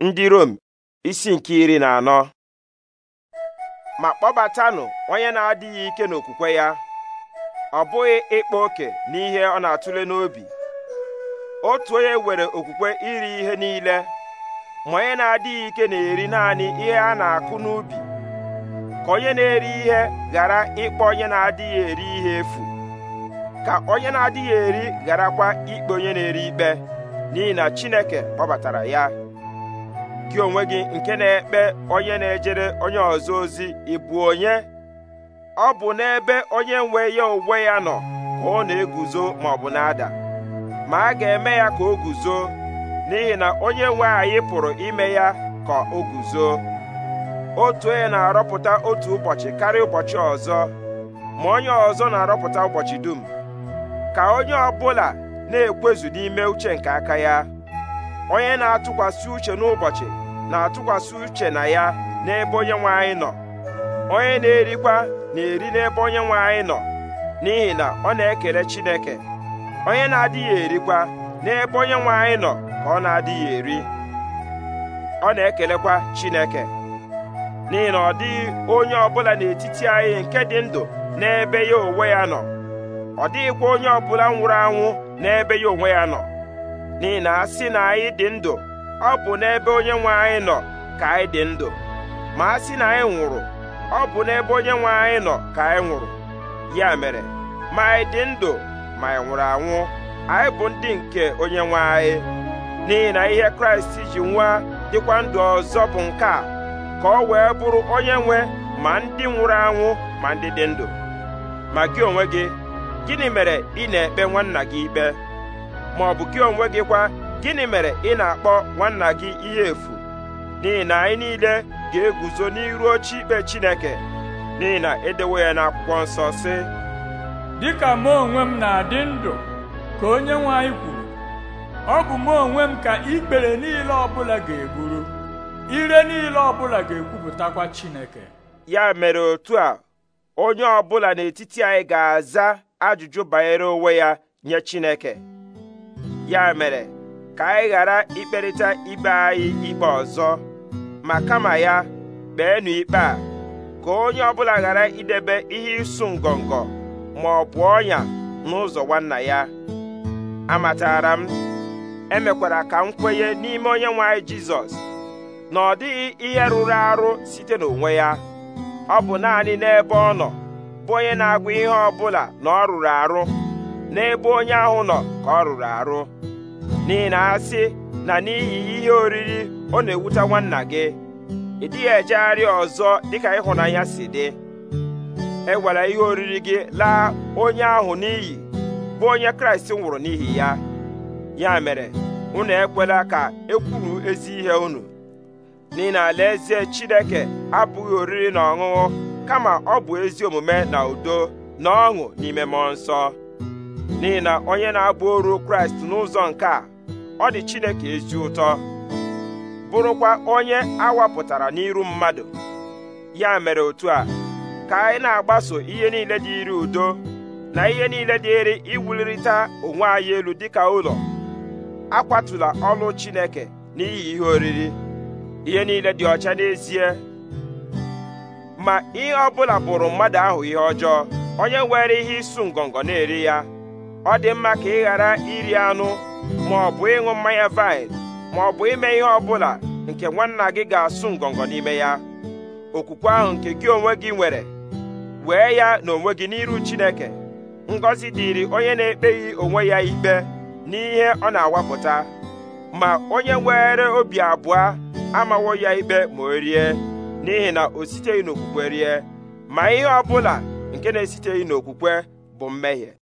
ndị Rom isi nke iri na anọ ma kpọbatanụ onye na-adịghị ike n'okwukwe ya ọ bụghị ịkpa oke n'ihe ọ na-atụle n'obi otu onye nwere okwukwe iri ihe niile ma onye na-adịghị ike na-eri naanị ihe a na-akụ n'ubi ka onye na-eri ihe ghara ịkpọ onye na-adịghị eri ihe efu ka onye na-adịghị eri gharakwa ikpe onye na-eri ikpe n'ihi na Chineke kpọbatara ya gị onwe gị nke na-ekpe onye na-ejere onye ọzọ ozi ị bụ onye ọ bụ n'ebe onye nwe ya onwe ya nọ ka ọ na-eguzo ma ọ bụ na-ada ma a ga-eme ya ka o guzo n'ihi na onye nwe anyị pụrụ ime ya ka o guzo otu onye na-arọpụta otu ụbọchị karịa ụbọchị ọzọ ma onye ọzọ na-arọpụta ụbọchị dum ka onye ọbụla na-ekwezu n'ime uche nke aka ya onye na-atụkwasị uche n'ụbọchị na-atụkwasị uche na ya n'ebe onye nwe anyị nọ onye na-erikwa na-eri n'ebe onye nwe anyị nọ n'ihi na ọ na-ekele Chineke onye na-adịghị erikwa n'ebe onye nwe anyị nọ ka ọ na-adịghị eri ọ na-ekelekwa Chineke n'ihi na ọ dịghị onye ọbụla n'etiti anyị nke dị ndụ n'ebe ya onwe ya nọ ọ dịghịkwa onye ọbụla nwụrụ anwụ n'ebe ya onwe ya nọ n'ihi na a sị na anyị dị ndụ ọ bụ n'ebe onyenwe nwe anyị nọ ka anyị dị ndụ ma a sị na anyị nwụrụ ọ bụ n'ebe onye nwe anyị nọ ka anyị nwụrụ ya mere ma anyị dị ndụ ma anyị nwụrụ anwụ anyị bụ ndị nke onye nwe anyị n'ihi na ihe kraịst ji nwa dịkwa ndụ ọzọ bụ nke a ka ọ wee bụrụ onye nwe ma ndị nwụrụ anwụ ma ndị dị ndụ ma gị onwe gị gịnị mere ị na-ekpe nwanna gị ikpe ma ọ bụ gị onwe gị kwa gịnị mere ị na-akpọ nwanna gị ihe efu n'ihi na anyị niile ga-eguzo n'iru oche ikpe Chineke n'ihi na edewo ya n'akwụkwọ nsọ si. dịka mụ onwe m na-adị ndụ ka onye nwe anyị kwuru ọ bụ mụ onwe m ka ikpere niile ọbụla ga-eburu ire niile ọbụla ga-ekwupụtakwa Chineke ya mere otu a onye ọbụla n'etiti anyị ga-aza ajụjụ banyere onwe ya nye Chineke ya mere ka anyị ghara ikperịta ibe anyị ikpe ọzọ ma kama ya kpeenụ ikpe a ka onye ọbụla ghara idebe ihe ịsụ ngọngọ ma ọ bụ ọnya n'ụzọ nwanna ya amatara m emekwara ka m kwenye n'ime onye nwanyị jizọs na ọ dịghị ihe rụrụ arụ site n'onwe ya ọ bụ naanị n'ebe ọ nọ bụ onye na-agwa ihe ọ na ọ rụrụ arụ n'ebe onye ahụ nọ ka ọ rụrụ arụ n'ihi na asị na n'ihi ihe oriri ọ na-ewute nwanna gị ị dịghị ejegharị ọzọ dịka ịhụnanya si dị ewere ihe oriri gị laa onye ahụ n'iyi bụ onye kraịst nwụrụ n'ihi ya ya mere unu ekwela ka ekwuru ezi ihe unu n'ihi na alaeze chineke abụghị oriri na ọṅụṅụ kama ọ bụ ezi omume na udo na ọṅụ n'ime mmụọ nsọ n'ihi na onye na-abụ oru kraịst n'ụzọ nke a ọ dị Chineke ezi ụtọ bụrụkwa onye awapụtara n'iru mmadụ ya mere otu a ka anyị na-agbaso ihe niile dị iri udo na ihe niile dịrị iwulirịta onwe anyị elu dịka ụlọ akwatụla ọlụ Chineke n'ihi ihe oriri ihe niile dị ọcha n'ezie ma ihe ọbụla bụla bụrụ mmadụ ahụ ihe ọjọọ onye nwere ihe ịsụ ngọngọ na-eri ya ọ dị mma ka ị ghara iri anụ ma ọ bụ ịṅụ mmanya vaịn ma ọ bụ ime ihe ọ bụla nke nwanna gị ga-asụ ngọngọ n'ime ya okwukwe ahụ nke gị onwe gị nwere wee ya na onwe gị n'iru Chineke ngọzi dịịrị onye na-ekpeghị onwe ya ikpe n'ihe ọ na-awapụta ma onye were obi abụọ amawo ya ikpe ma o rie n'ihi na o siteghị n'okwukwe rie ma ihe ọ bụla nke na-esiteghị n'okwukwe bụ mmehie